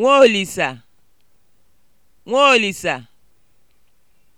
Nwaolisa Nwaolisa